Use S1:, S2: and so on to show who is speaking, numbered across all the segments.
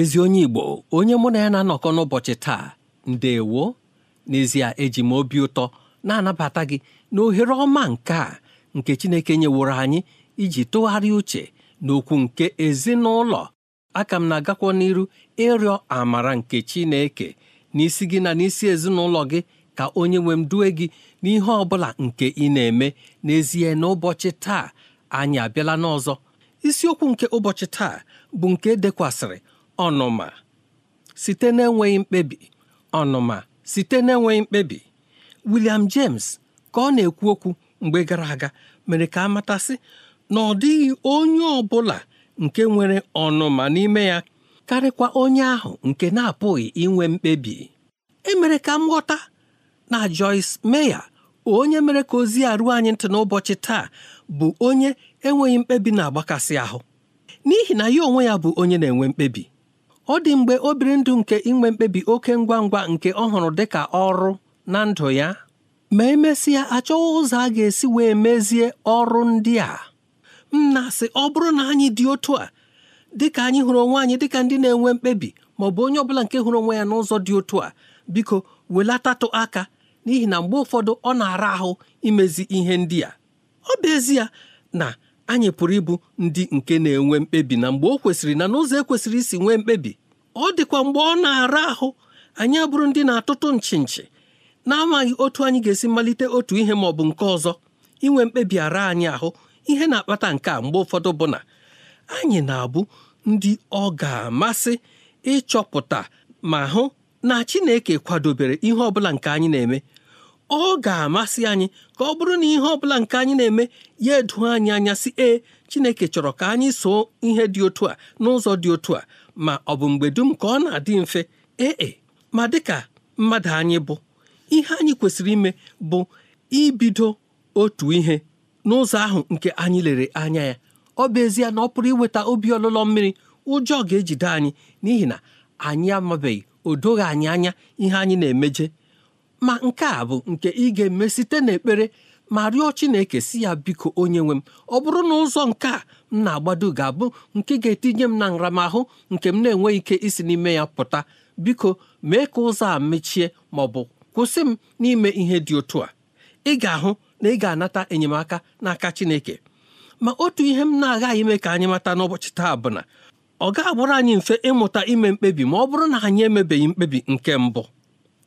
S1: ezi onye Igbo onye mụ na ya na-anọkọ n'ụbọchị taa ndewo n'ezie eji m obi ụtọ na-anabata gị na ohere ọma nke a nke Chineke nyeworo anyị iji tụgharịa uche n'okwu nke ezinụlọ aka m na-agakwa n'iru ịrịọ amara nke Chineke n'isi gị na n'isi ezinụlọ gị ka onye nwe m due gị n'ihe ọ bụla nke ị na-eme n'ezie n'ụbọchị taa anyị abịala n'ọzọ isiokwu nke ụbọchị taa bụ nke e dekwasịrị ọnụma site n'enweghị mkpebi ọnụma site na-enweghị mkpebi William James ka ọ na-ekwu okwu mgbe gara aga mere ka a matasị na ọ dịghị onye ọ bụla nke nwere ọnụma n'ime ya karịkwa onye ahụ nke na-apụghị inwe mkpebi emere ka m ghọta na Joyce Meya onye mere ka ozi a ruo anyị ntị n'ụbọchị taa bụ onye enweghị mkpebi na-agbakasị ahụ n'ihi na ya onwe ya bụ onye na-enwe mkpebi ọ dị mgbe obiri ndụ nke inwe mkpebi oke ngwa ngwa nke ọ hụrụ dị ọrụ na ndụ ya ma emesịa achọghị ụzọ a ga-esi wee mezie ọrụ ndị a m na ọ bụrụ na anyị dị otu a ka anyị hụrụ onwe anyị dịka ndị na-enwe mkpebi ma ọ bụ onye ọbụla nke hụrụ onwe ya n'ụzọ dị otu a biko welatatụ aka n'ihi na mgbe ụfọdụ ọ na-ara ahụ imezi ihe ndị a ọ bụ ezie na anyị pụrụ ịbụ ndị nke na-enwe mkpebi na mgbe o kwesịrị na n'ụzọ ekwesịrị isi nwee mkpebi ọ dịkwa mgbe ọ na-ara ahụ anyị abụrụ ndị na-atụtụ nchi nchi na-amaghị otu anyị ga-esi malite otu ihe ma ọ bụ nke ọzọ inwe mkpebi ara anyị ahụ ihe na-akpata nke a mgbe ụfọdụ bụ na anyị na-abụ ndị ọ ga-amasị ịchọpụta ma hụ na Chineke kwadobere ihe ọ bụla nke anyị na-eme ọ ga-amasị anyị ka ọ bụrụ na ihe ọ bụla nke anyị na-eme ya edu anyị anya si ee Chineke chọrọ ka anyị soo ihe dị otu a n'ụzọ dị otu a ma ọ bụ mgbe dum ka ọ na-adị mfe ee e, ma dịka mmadụ anyị bụ ihe anyị kwesịrị ime bụ ibido otu ihe n'ụzọ ahụ nke anyị lere anya ya ọ bụ ezie na ọ pụrụ iweta obi ọlụlọ mmiri ụjọ ga-ejide anyị n'ihi na anyị amabeghị o doghị anyị anya ihe anyị na-emeje ma nke a bụ nke ị ga-eme site n'ekpere ma rịọ Chineke si ya biko onye nwe m ọ bụrụ na ụzọ nke a m na-agbado ga-abụ nke ga-etinye m na nramahụ nke m na-enweghị ike isi n'ime ya pụta biko mee ka ụzọ a mechie ma ọ bụ kwụsị m n'ime ihe dị otu a ị ga-ahụ na ị ga-anata enyemaka n'aka Chineke ma otu ihe m na-agaghị ime ka anyị mata n'ụbọchị taa bụ na ọ ga abụrụ anyị mfe ịmụta ime mkpebi ma ọ bụrụ na anyị emebeghị mkpebi nke mbụ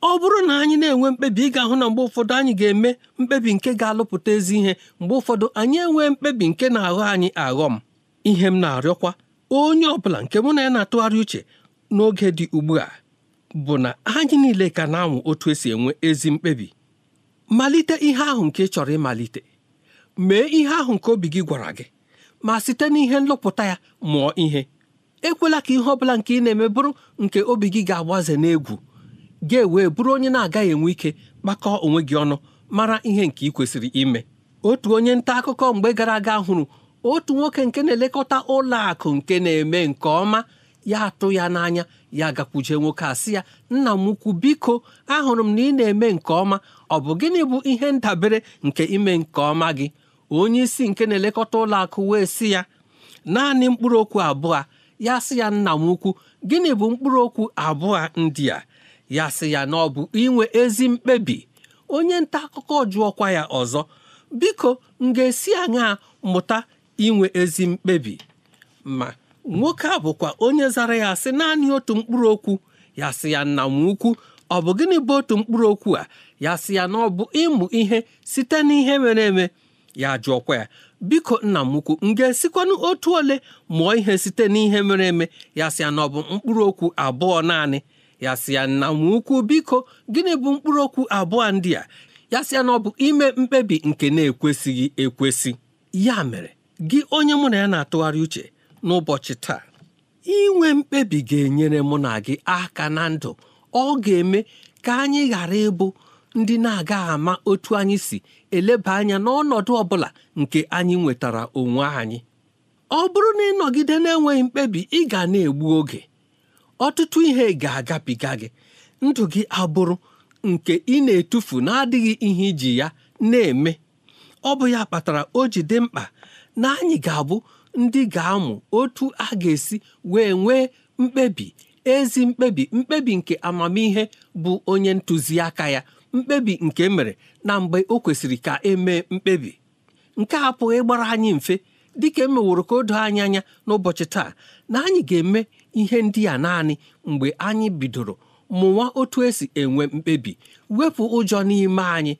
S1: ọ bụrụ na anyị na-enwe mkpebi ị ga-ahụ na mgbe ụfọdụ anyị ga-eme mkpebi nke ga-alụpụta ezi ihe mgbe ụfọdụ anyị enwee mkpebi nke na-aghọ anyị aghọ m ihe m na-arịọkwa onye ọ bụla nke mụ na ya na-atụgharị uche n'oge dị ugbu a bụ na anyị niile ka na-anwụ otu esi enwe ezi mkpebi malite ihe ahụ nke ị chọrọ ịmalite mee ihe ahụ nke obi gị gwara gị ma site n'ihe nlụpụta ya mụọ ihe ekwela ka ihe ọ bụla nke ị na-eme bụrụ nke obi gị ga-agbaze n'egwu ga-ewe bụrụ onye na-agaghị enwe ike kpakọọ onwe gị ọnụ mara ihe nke ị kwesịrị ime otu onye nta akụkọ mgbe gara aga hụrụ otu nwoke nke na-elekọta ụlọ akụ nke na-eme nke ọma ya atụ ya n'anya ya gakwuje nwoke a ya nna m ukwu biko ahụrụ m na ị na-eme nke ọma ọ bụ gịnị bụ ihe ndabere nke ime nke ọma gị onye isi nke na-elekọta ụlọ akụ wee sị ya naanị mkpụrụ okwu abụọ ya sị ya nna m ukwu gịnị bụ mkpụrụ okwu abụọ ndị a ya sị ya na ọ bụ inwe ezi mkpebi onye nta akụkọ jụọkwa ya ọzọ biko m ga-esi aṅaa mụta inwe ezi mkpebi ma nwoke a bụkwa onye zara ya sị naanị otu mkpụrụ okwu ya sị ya nna m ukwu ọ bụ gịnị bụ otu mkpụrụ okwu a ya sị ya na ọ bụ ịmụ ihe site n'ihe mere eme ya jụọkwa ya biko nna m ukwu m ga-esikwanụ otu ole mụọ ihe site n'ihe mere eme ya sị ya na ọ bụ mkpụrụ okwu abụọ naanị ya si ya nna m ukwu biko gịnị bụ mkpụrụ okwu abụọ ndị a ya si ya na ọ bụ ime mkpebi nke na-ekwesịghị ekwesị ya mere gị onye mụ na ya na-atụgharị uche n'ụbọchị taa inwe mkpebi ga-enyere mụ na gị aka na ndụ ọ ga-eme ka anyị ghara ịbụ ndị na aga ama otu anyị si eleba anya n'ọnọdụ ọ bụla nke anyị nwetara onwe anyị ọ bụrụ na ịnọgide na-enweghị mkpebi ị ga na-egbu oge ọtụtụ ihe ga-agabiga gị ndụ gị abụrụ nke ị na-etufu na-adịghị ihe iji ya na-eme ọ bụ ya kpatara o ji dị mkpa na anyị ga-abụ ndị ga-amụ otu a ga-esi wee nwee mkpebi ezi mkpebi mkpebi nke amamihe bụ onye ntụziaka ya mkpebi nke e mere na mgbe o kwesịrị ka emee mkpebi nke a pụghị ịgbara anyị mfe dịka emeworo ka o doo anyị anya n'ụbọchị taa na anyị ga-eme ihe ndị a naanị mgbe anyị bidoro mụwa otu esi enwe mkpebi wepụ ụjọ n'ime anyị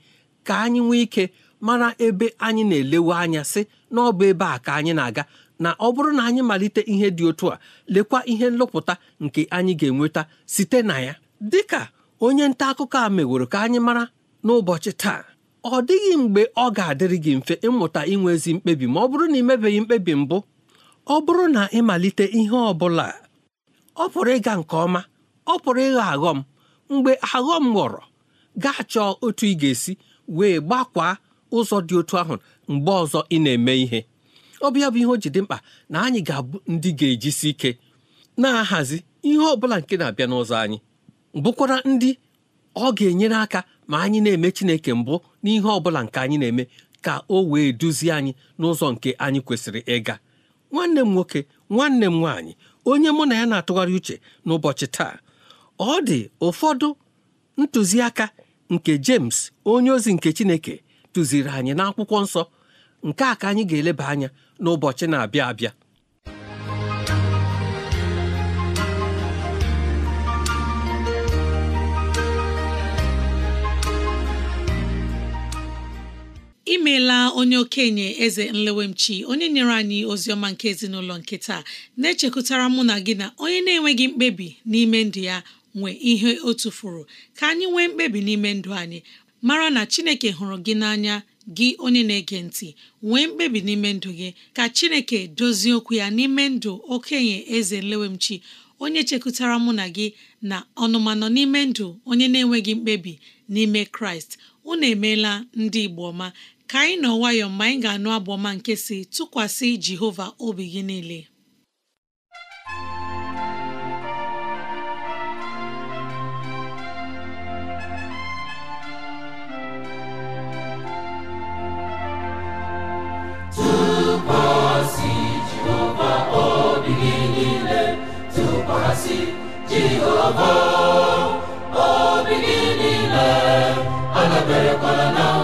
S1: ka anyị nwee ike mara ebe anyị na-elewe anya sị na ọ bụ ebe a ka anyị na-aga na ọ bụrụ na anyị malite ihe dị otu a lekwa ihe nlụpụta nke anyị ga-enweta site na ya Dị ka onye nta akụkọ a meworo ka anyị mara n'ụbọchị taa ọ dịghị mgbe ọ ga-adịrị gị mfe ịmụta inwe ezi mkpebi ma ọ bụrụ na ị mebeghị mkpebi mbụ ọ bụrụ na ịmalite ihe ọ bụla ọ pụrụ ịga nke ọma ọ pụrụ ịghọ aghọm mgbe aghọm ghọrọ gaa chọọ otu ị ga-esi wee gbakwaa ụzọ dị otu ahụ mgbe ọzọ ị na-eme ihe ọ bụ bụ ihe o ji dị mkpa na anyị ga-abụ ndị ga-ejisi ike na-ahazi ihe ọ bụla nke na-abịa n'ụzọ anyị bụkwara ndị ọ ga-enyere aka ma anyị na-eme Chineke mbụ n'ihe ọ bụla nke anyị na-eme ka o wee duzie anyị n'ụzọ nke anyị kwesịrị ịga nwanne m nwoke nwanne m nwaanyị onye mụ na ya na-atụgharị uche n'ụbọchị taa ọ dị ụfọdụ ntụziaka nke James onye ozi nke Chineke tụziri anyị n'akwụkwọ nsọ nke a ka anyị ga-eleba anya n'ụbọchị na-abịa abịa
S2: imeela onye okenye eze nlewemchi onye nyere anyị ozi ọma nke ezinụlọ nke taa na-echekwutara mụ na gị na onye na-enweghị mkpebi n'ime ndụ ya nwe ihe o tufuru ka anyị nwee mkpebi n'ime ndụ anyị mara na chineke hụrụ gị n'anya gị onye na-ege ntị nwee mkpebi n'ime ndụ gị ka chineke dozie okwu ya n'ime ndụ okenye eze nlewemchi onye chekwutara mụ na gị na ọnụmanọ n'ime ndụ onye na-enweghị mkpebi n'ime kraịst unu emeela ndị igbo ọma ka anyị nọ nwayọọ mgbe anyị ga-anụ abụ ọma nke si tụkwasị Jehova obi gị niile tụkwasị
S3: Jehova obi gị niile tụkwasị Jehova obi gị niile adaberekwala na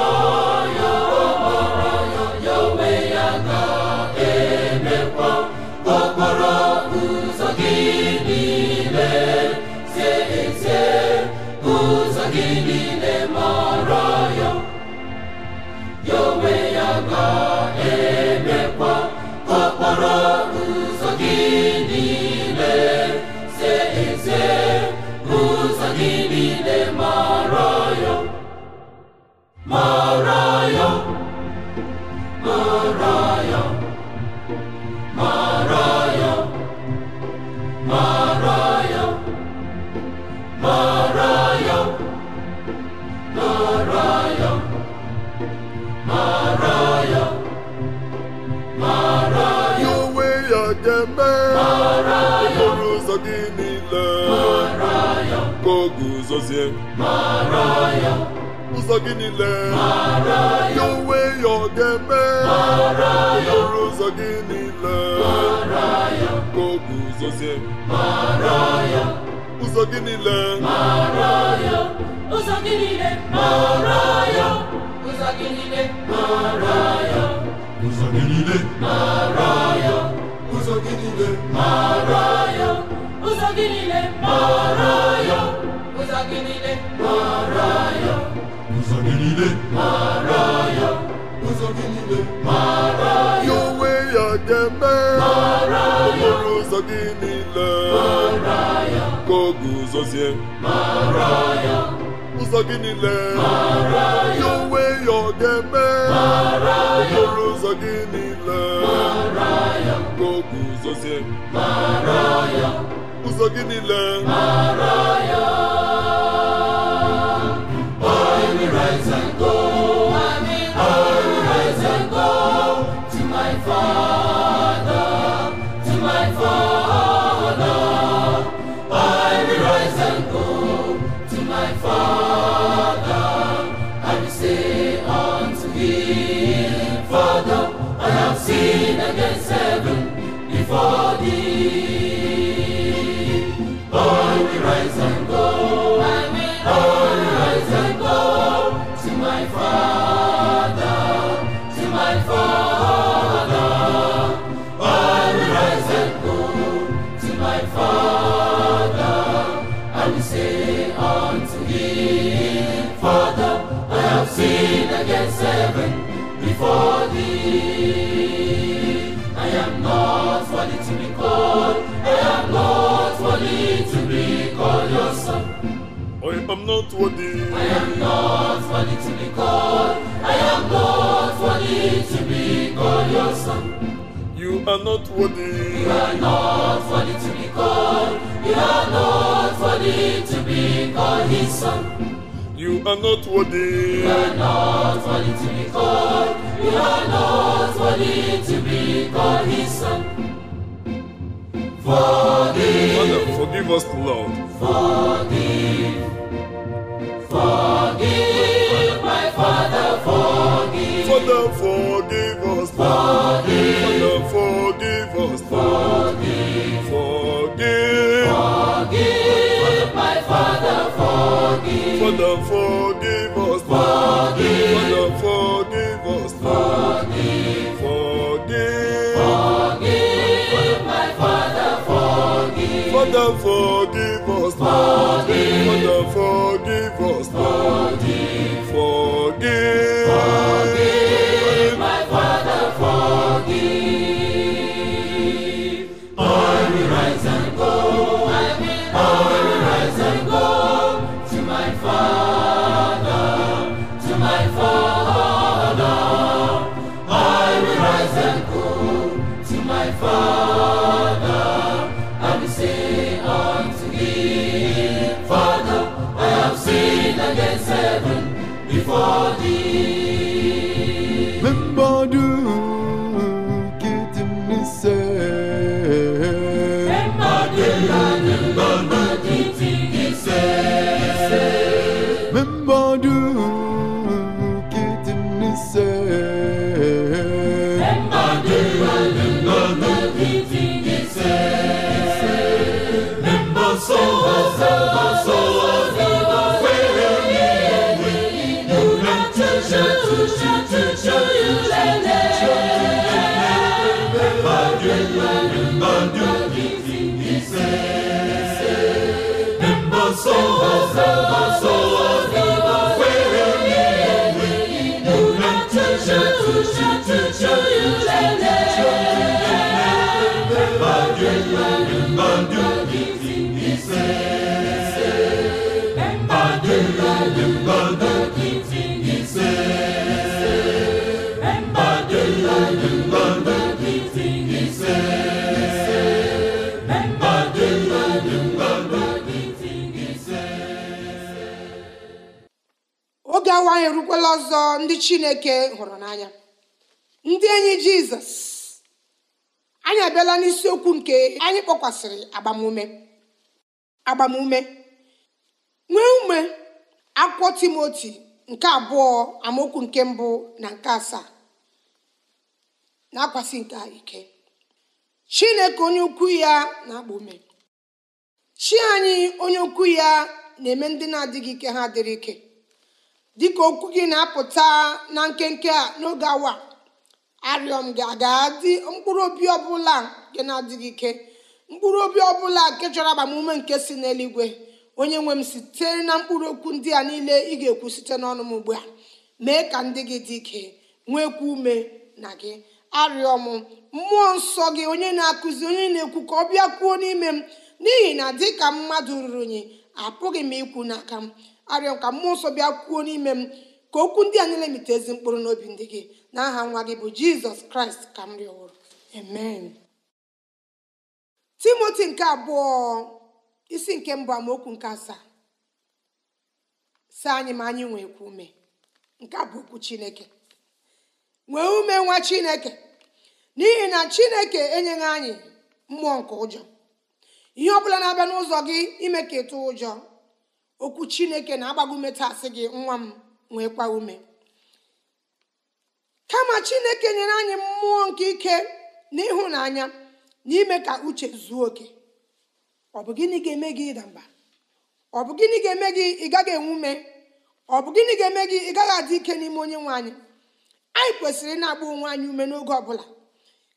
S4: n'ezie ụzọ gị niile ya onwe ya ọ ga-eme okporo ụzọ gị niile ka o ụzọ gị niile ụzọ gị niile ụzọ gị niile ụzọ gị niile
S3: ụzọ gị niile
S4: ụzọ gị gị niile mara ya
S3: ụzọ gị niile mara ya ụzọ gị
S4: niile mara ya onwe ya ga-eme mara ya okporo ụzọ gị niile mara ya ka ọ guzozie mara ya ụzọ gị niile mara ya onwe ya ọ ga-eme ya okporo ụzọ gị niile mara ya ka ọ ya ụzọ gị niile mara ya I am not worthy. I am not worthy to be called.
S3: I am not worthy
S4: to be called your son. You are not worthy. You are not worthy to be called. You are not worthy to be called his son. You are not worthy. You are not worthy to be called. You are not worthy to be called his son. For forgive Forgive. Forgive, my Father, forgive. Father, forgive Forgive. forgive Forgive. Forgive. Forgive, my Father, forgive. forgive Forgive. Father, forgive us. Forgive
S3: ọsọ
S5: ọnwa anyị erukwala ọzọ ndị chineke hụrụ n'anya ndị enyi jizọs anyị abịala n'isiokwu nke anyị kpọkwasịrị agbamume agbamume nwee ume akwụkwọ timoti nke abụọ amaokwu nke mbụ na nke asaa na-akwasị ike chineke onye ukwu ya na akpọ ume chi anyị onye ukwu ya na-eme ndị na-adịghị ike ha dịrị ike dịka okwu gị na-apụta na nkenke a n'oge awa arịọ m gị aga dị mkpụrụ obi ọbụla nke na-adịghị ike mkpụrụ obi ọbụla nke chọrọ agbamume nke si n'eluigwe onye nwe m sitere na mkpụrụ okwu ndị a niile ị ga-ekwu site n'ọnụ m ugbu a mee ka ndị gị dị ike nwekwa ume na gị arịọ m mmụọ nsọ gị onye na-akụzi onye na-ekwu ka ọ bịa kwuo n'ime m n'ihi na dịka mmadụ ruru unyi apụghị m ikwu n'aka m arịọ ka mmụọ nsọ bịa kwuo n'ime m ka okwu ndị a niile mite ezi mkpụrụ n'obi ndị gị na aha nwa gị bụ jizọs kraịst ka m rịọrọ amen timoti nke abụọ isi nke mbụ amaokwu nke asaa sị anyị ma anyị nwee kwu ume nke bụ okwu chineke nwee ume nwa chineke n'ihi na chineke enyeghị anyị mmụọ nke ụjọ ihe ọ bụla na-abịa n'ụzọ gị ime ka ịtụ ụjọ okwu chineke na-agbagume tasị gị nwa m nwekwa ume kama chineke nyere anyị mmụọ nke ike na ịhụnanya na ime ka uche zuo oke ọ bụ gịnị ga-eme gị ịda mba ọ bụ gịnị ga-eme gị ị gaghị enwe ume ọ bụ gịnị ga-eme gị ị gaghị adị ike n'ime onye nwe anyị anyị kwesịrị ịna-agba onwe anyị ume n'oge ọbụla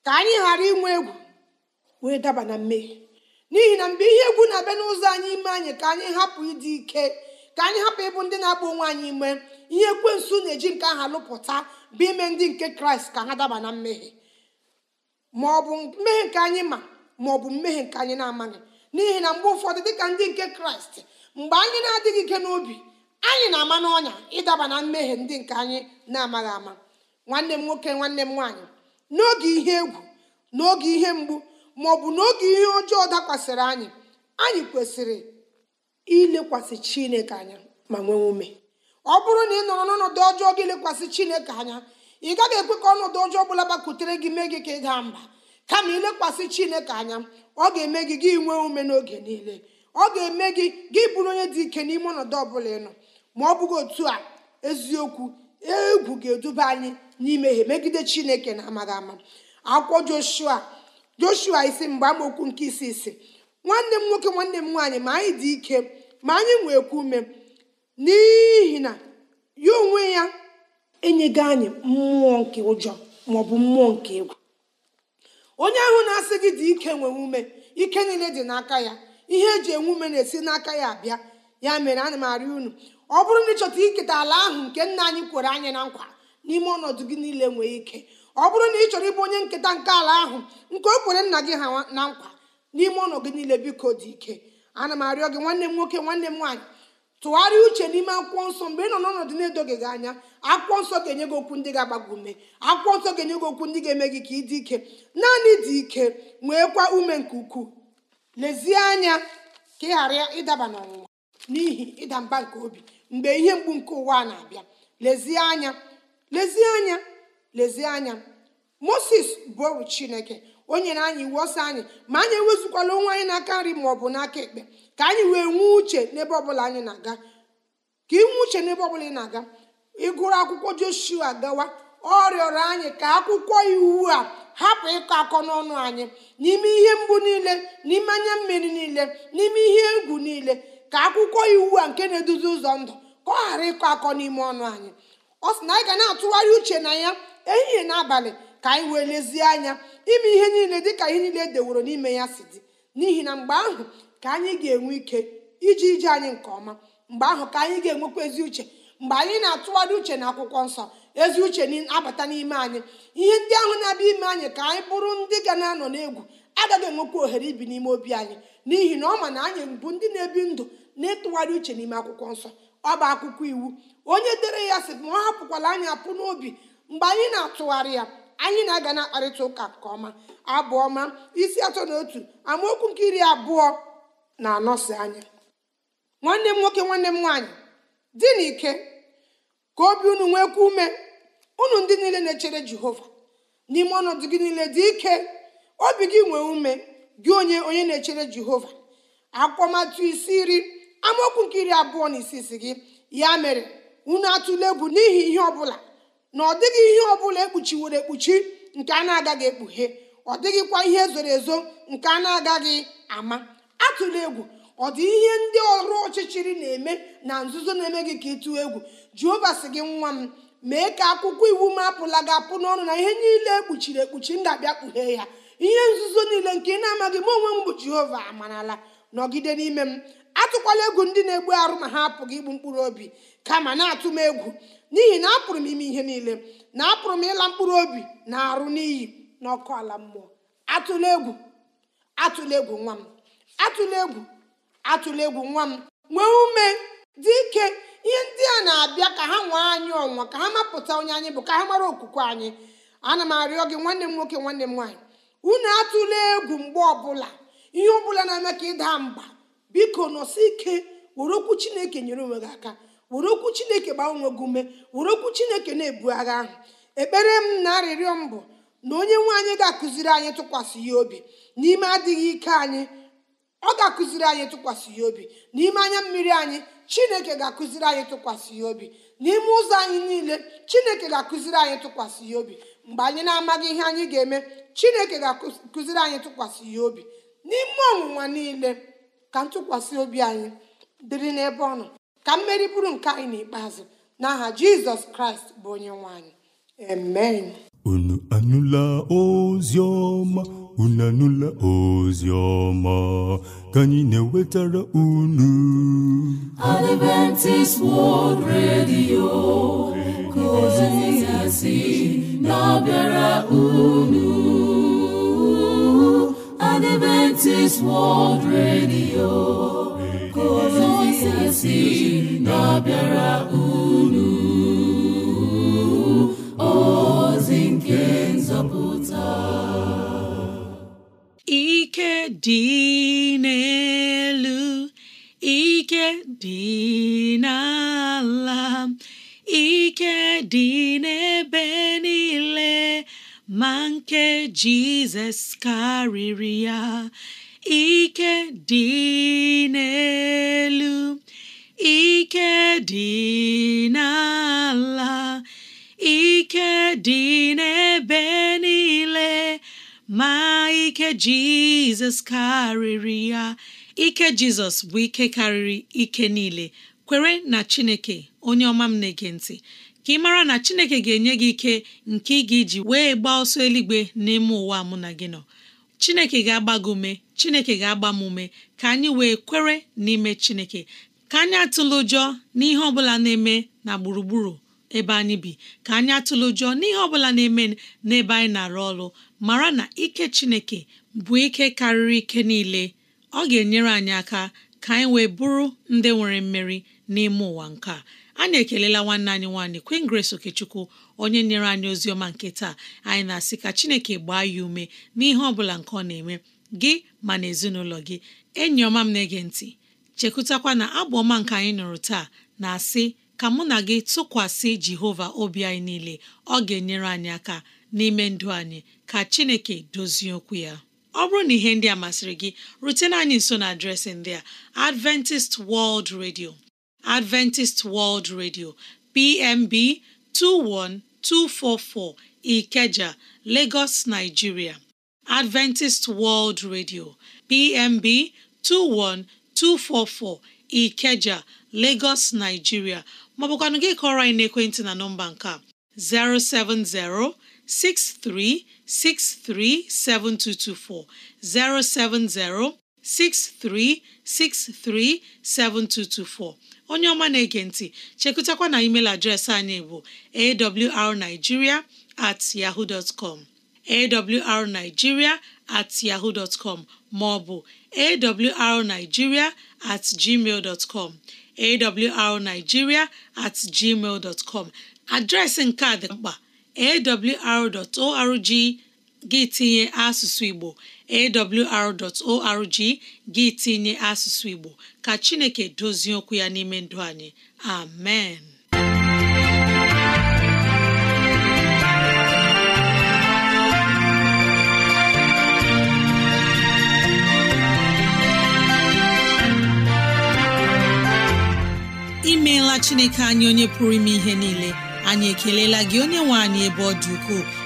S5: ka anyị ghara inwe egwu wee daba na mmehie n'ihi na mgbe ihe egwu na-abịa n'ụzọ anyị ime anyị ka anyị hapụ ịdị ike ka anyị hapụ ịbụ ndị na-agba onwe anyị ime ihe ekwensu na-eji nke aha lụpụta bụ ime ndị nke kraịst ka ha daba na mmehie ma ọ bụ mmehie nke anyị ma ma ọ bụ mmehie nke anyị na-amaghị n'ihi na mgbe ụfọdụ dịka ndị nke kraịst mgbe anyị na-adịghị ike n'obi anyị na-ama n'ọnya ịdaba na mmehie ndị nke anyị na-amaghị ama nwanne m nwoke nwanne m nwaanyị n'oge ihe egwu n'oge ihe mgbu ma ọ bụ n'oge ihe ọjọọ dakwasịrị anyị anyị kwesịrị ilekwasị chineke anya ma nwee ume ọ bụrụ na ị nọrọ n'ọnọdụ ọjọọ gị lekwasị chineke anya ị gaghị ekwe ka ọnọdụ ọjọọ ọbụla gbakwutere gị mee gị ka ị gaa mba kama ilekwasị chineke anya ọ ga-eme gị gị nwee ume n'oge niile ọ ga-eme gị gị bụrụ onye dị ike n'ime ọnọdụ ọbụla ịnọ ma ọ bụghị otu a eziokwu egwu ga-eduba anyị n'imehie megide chineke na amaghị ama akwụkwọ joshua joshua isi mgbe amaokwu nke isi isi nwanne m nwoke nwanne m nwaanyị ma anyị dị ike ma anyị kwu ume n'ihi na ya onwe ya enyego anyị mmụọ nke ụjọ maọbụ mmụọ nke egwu onye ahụ na-asị gị dị ike nwee ume ike niile dị n'aka ya ihe eji enwe ume na-esi n'aka ya abịa ya mere ana m arị unu ọ bụrụ na ịchọta iketa ala ahụ nke nna anyị kwere anyị na nkwa n'ime ọnọdụ gị niile nwee ike ọ bụrụ na ị chọrọ ịbụ onye nketa nke ala ahụ nke o kwere nna gị ha na nkwa n'ime ụlọ gị niile biko dị ike ana m arịọ gị nwanne m nwoke nwanne m nwaanyị tụgharịa uche n'ime akwụkwọ nsọ mgbe ị nọ n'ọnọdụ na-edoghị gị anya akwụkwọ nsọ ga-enye gị okwu ndị ga-agbago ume akwụkwọ nsọ ga-enye gị okwu ndị ga-eme gị ka ị dị ike naanị dị ike nweekwa ume nke ukwuu lezie anya ka ị ghara ịdaba n'ọnwụnwa n'ihi ịda mba nke obi mgbe ihe mgbu nke ụwa na-abịa lezie anya lezie anya lezie anya moses bụ chineke o nyere anyị iwu ọsọ anyị ma anyị ewezukwala onwe anyị n'aka nri ma ọ bụ n'aka ekpe ka anyị wee nwee uche n'ebe ọbụla anyị na-aga ka inwe uche n'ebe ọbụla ị na-aga ịgụrụ akwụkwọ joshua gawa ọ rịọrọ anyị ka akwụkwọ iwu a hapụ ịkọ akọ n'ọnụ anyị n'ime ihe mgbu niile n'ime anya mmiri niile n'ime ihe egwu niile ka akwụkwọ iwu a nke na-eduzi ụzọ ndụ ka ọ ghara ịkọ akọ n'ime ọnụ anyị ọ sị na anyị ga na-atụgharị uche na ya ehihie na abalị ka anyị wee lezie anya ime ihe niile dịka ihe niile e deworo n'ime ya si dị n'ihi na mgbe ahụ ka anyị ga-enwe ike iji ije anyị nke ọma mgbe ahụ ka anyị ga-enwekwa ezi uche mgbe anyị na-atụgharị uche na akwụkwọ nsọ ezi uche abata n'ime anyị ihe ndị ahụ na-abịa ime anyị ka anyị bụrụ ndị ga na-anọ n'egwu agaghị enwekwa ohere ibi n'ime obi anyị n'ihi na ọ ma na anyị bụ ndị na-ebi ndụ na-etụgharị uche n'ime akwụkwọ nsọ ọ bụ akwụkwọ iwu onye dere ya sị ma ọ hapụkwala anyị apụ n'obi mgbe anyị na-atụgharị ya anyị na-aga na-akparịta ụka nke ọma abụ ọma isi atọ na otu amaokwu nke iri abụọ na anọsi anya nwanne m nwoke nwanne m nwaanyị dị n'ike ka obi unu nwekwa ume unu ndị niile na-echere jehova n'ime ọnọdụ gị niile dị ike obi gị nwee ume gị onye onye na-echere jehova akpọmatụ isi iri amaokwu nke iri abụọ na isi isi gị ya mere unu atụle egwu n'ihi ihe ọ bụla na ọ dịghị ihe ọbụla ekpuchiworo ekpuchi nke a na-agaghị ekpughe ọ dịghịkwa ihe zoro ezo nke a na-agaghị ama atụla egwu ọ dị ihe ndị ọrụ ọchịchịrị na-eme na nzuzo na-eme gị ka ịtụ egwu jehova sị gị nwa m mee ka akwụkwọ iwu m apụla gị apụ n'ọnụ na ihe niile ekpuchiri ekpuchi ndabịa kpughee ya ihe nzuzo niile nke ị na-amaghị m onwe m bụ jehova amarala nọgide n'ime m atụkwala egwu ndị na-egbu arụ ma ha apụghị igbu mkpụrụ obi kama na-atụ m egwu n'ihi na apụrụ m ime ihe niile na apụrụ m ịla mkpụrụ obi na arụ n'iyi ọkụ ala mmụọ atụla egwu atụla egwu nwa m atụla egwu atụla egwu nwa m nwee ume dị ike ihe ndị a na-abịa ka ha nwee anyị ọnwa ka ha mapụta onye anyị bụ ka ha mara okwukwe anyị ana m arịọ gị nwanne m nwoke nwanne m nwaanyị unu atụla egwu mgbe ọbụla ihe ọbụla na-eme ka ịda mba biko nọsi ike were okwu chineke nyere onwe gị aka were okwu chineke gbanwe gị ume were okwu chineke na-ebu agha ahụ ekpere m na arịrịọ m bụ na onye nwe anyị ga-akụziri anyị tụkwasị ya obi n'ime adịghị ike anyị ọ ga-akụziri anyị tụkwasị ya obi n'ime anya mmiri anyị chineke ga-akụziri anyị tụkwasị ya obi n'ime ụzọ anyị niile chineke ga-akụziri anyị tụkwasị ya obi mgbe anyị na-amaghị ihe anyị ga-eme chineke ga-akụziri anyị tụkwasị ya obi n'ime ọnwụnwa niile ka ntụkwasị obi anyị dịrị n'ebe ọ nọ ka mmeri bụrụ nke anyị n'ikpeazụ n'aha jizọs kraịst bụ onye nwanyị amen
S4: unu anụla ozi ọma unu anụla ozi ọma ka anyị na-ewetara unu Adventist World Radio ka ozi
S3: ya na-abịara unu Adventist World Radio na-abịara unu ozi nke nzọpụta
S6: ike
S2: dị n'elu ike dị n'ala ike dị n'ebe niile ma nke Jizọs karịrị ya ike dị n'elu ike dị n'ala ike dị n'ebe niile ma ike Jizọs karịrị ya ike Jizọs bụ ike karịrị ike niile kwere na Chineke onye ọma m na-ege ntị ka ị mara na Chineke ga-enye gị ike nke ị ga-eji wee gbaa ọsọ eluigwe n'ime ụwa mụ na gị nọ chineke ga-agba gị ume chineke ga-agba m ka anyị wee kwere n'ime chineke ka anyị atụla ụjọ n'ihe ọbụla na-eme na gburugburu ebe anyị bi ka anyị atụla ụjọ n'ihe ọbụla na-eme n'ebe anyị na-arụ ọrụ mara na ike chineke bụ ike karịrị ike niile ọ ga-enyere anyị aka ka anyị wee bụrụ ndị nwere mmeri n'ime ụwa nke a anyị ekelela nwanne anyị nwaanyị Queen Grace Okechukwu onye nyere anyị ozi ọma nke taa anyị na-asị ka Chineke gbaa ya ume n'ihe ọ bụla nke ọ na-eme gị ma na ezinụlọ gị enyi ọma m na-ege ntị chekwutakwa na abụ ọma nke anyị nụrụ taa na-asị ka mụ na gị tụkwasị Jehova obi anyị niile ọ ga-enyere anyị aka n'ime ndụ anyị ka Chineke dozie okwu ya ọ bụrụ na ihe ndị a masịrị gị rutena anyị nso na adreesị ndị a Adventist World Radio Adventist World Radio PMB 21244 Ikeja, Lagos, Nigeria. Adventist World Radio PMB 21244 Ikeja, Lagos, Nigeria. ma ọ gị kọrọ anyị n'ekwentị na nọmba nke 070 07063637224 070 63637224 onye ọma na-ege ntị chekụtakwa na email adreesị anyị bụ awrnigeria at yahoo dot com awrnigeria at yahoo dot com maọbụ ọ at gmail dot com awrnigeria at gmail dot com adreesị nke a dị mkpa awr.org gị tinye asụsụ Igbo awr.org gị tinye asụsụ Igbo ka Chineke dozie okwu ya n'ime ndụ anyị
S6: amen
S2: imeela Chineke anyị onye pụrụ ime ihe niile anyị ekelela gị onye nwe anyị ebe ọ dị ukwuu